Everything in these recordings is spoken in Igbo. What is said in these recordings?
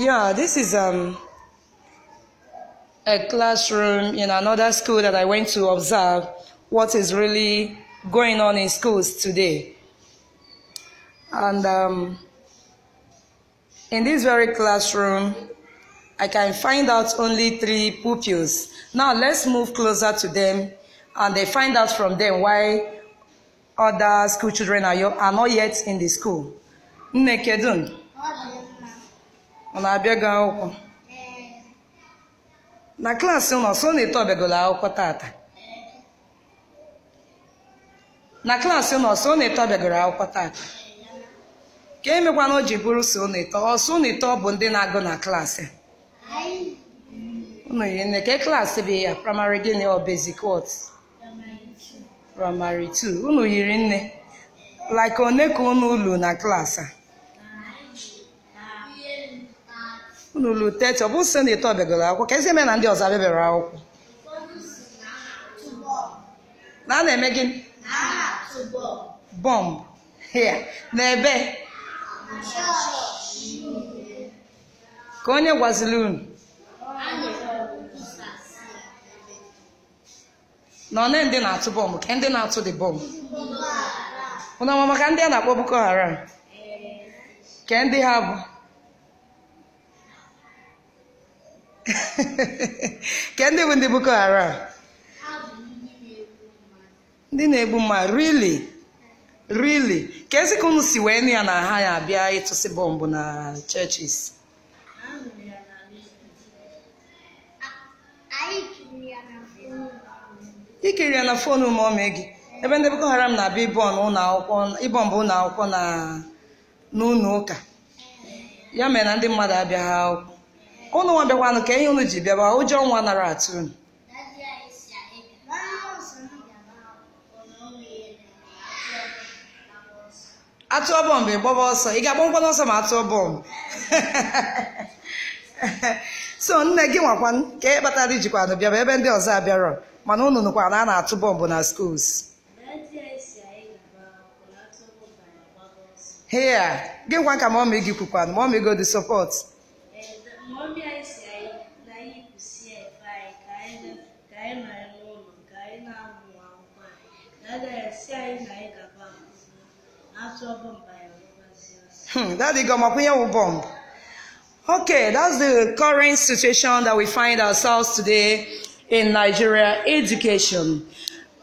Yeah, this is um, a classroom in another school that I went to observe what is really going on in schools today. And um, in this very classroom, I can find out only three pupils. Now let's move closer to them and they find out from them why other school children are, are not yet in the school. ọ na-abịa gị akwụkwọ na klaasị nọ sọ na eto ọbịagolo akwụkwọ tata na klaasị nọ sọ na eto ọbịagoro akwụkwọ tata ka emekwa na o ji bụrụ so na eto ọsọ na eto bụ ndị na-agụ na klaasị ụnụ yi nne ka e klaasị bụ ya praịmarị gịnị ọ basic praịmarị 2 ụnụ yiri nne like one ka unu ulu na klaasị a unu lụrụ teti ọ bụ site na ete ọbịagoro akwụkwọ ka ezi eme na ndị ọzọ abịabịara akwụkwọ na a na-eme gịnị bọmbụ hịa na ebe ka onye gwaziri unu na one ndị na-atụ bọmbụ ka ndị na-atụ dị bọmbụ ụnụ ọma maka ndị a na-akpọ Boko Haram ka ndị ha bụ Kedụ bụ ndị Boko Haram? ndị na-egbu mma, rili rili ka ezi ka unu si wee nụ ya na ha ya abịa ịtụsị bọmbụ na churches ikiri ya na fonu ma gị ebe ndị Boko Haram na-abịa ịbọmbụ ụlọ akwụkwọ na n'ụlọ ụka ya mere na ndị mmadụ abịaghị akwụkwọ unu nwa bịakwanụ ka ihe unu ji bịaba ụjọ nwa nara atụ unu atụọ bọmbụ ịgbaba ọsọ ị ga-agba mkpọnụ ọsọ ma atụọ bọmbụ so nne gị nwakwan ka e kpatara ijikwanụ bịaba ebe ndị ọzọ abịarọ mana unu nụkwa na a na-atụ bọmbụ na skuls hea gị nkwa ka mọmị gị kwukwanụ mọmị go dị anyị nọrị n'ụlọ ka anyị na-amụ akwụkwọ anyị na agaghị esi anyị na anyị gaba atụ bọmbụ anyị Hmm, that's the Gomakuyawu bomb. Okay, that's the current situation that we find ourselves today in Nigeria education.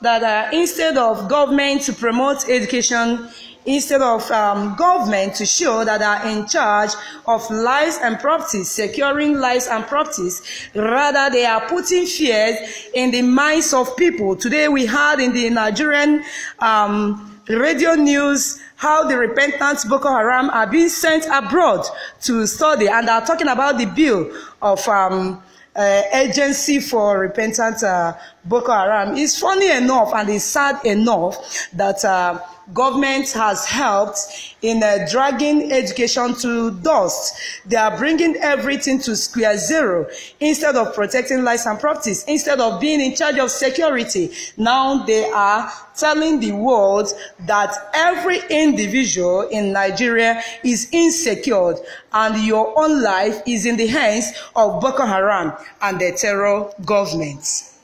That uh, instead of government to promote education, instead of um, government to show that they are in charge of lives and properties, securing lives and properties. Rather, they are putting fears in the minds of people. Today, we had in the Nigerian um, radio news how the repentant Boko Haram are being sent abroad to study, and are talking about the bill of. Um, uh, agency for repentant uh, Boko Haram. It's funny enough and it's sad enough that uh, government has helped in uh, dragging education to dust. They are bringing everything to square zero. Instead of protecting lives and properties, instead of being in charge of security, now they are telling the world that every individual in Nigeria is insecure and your own life is in the hands of Boko Haram and the terror governments.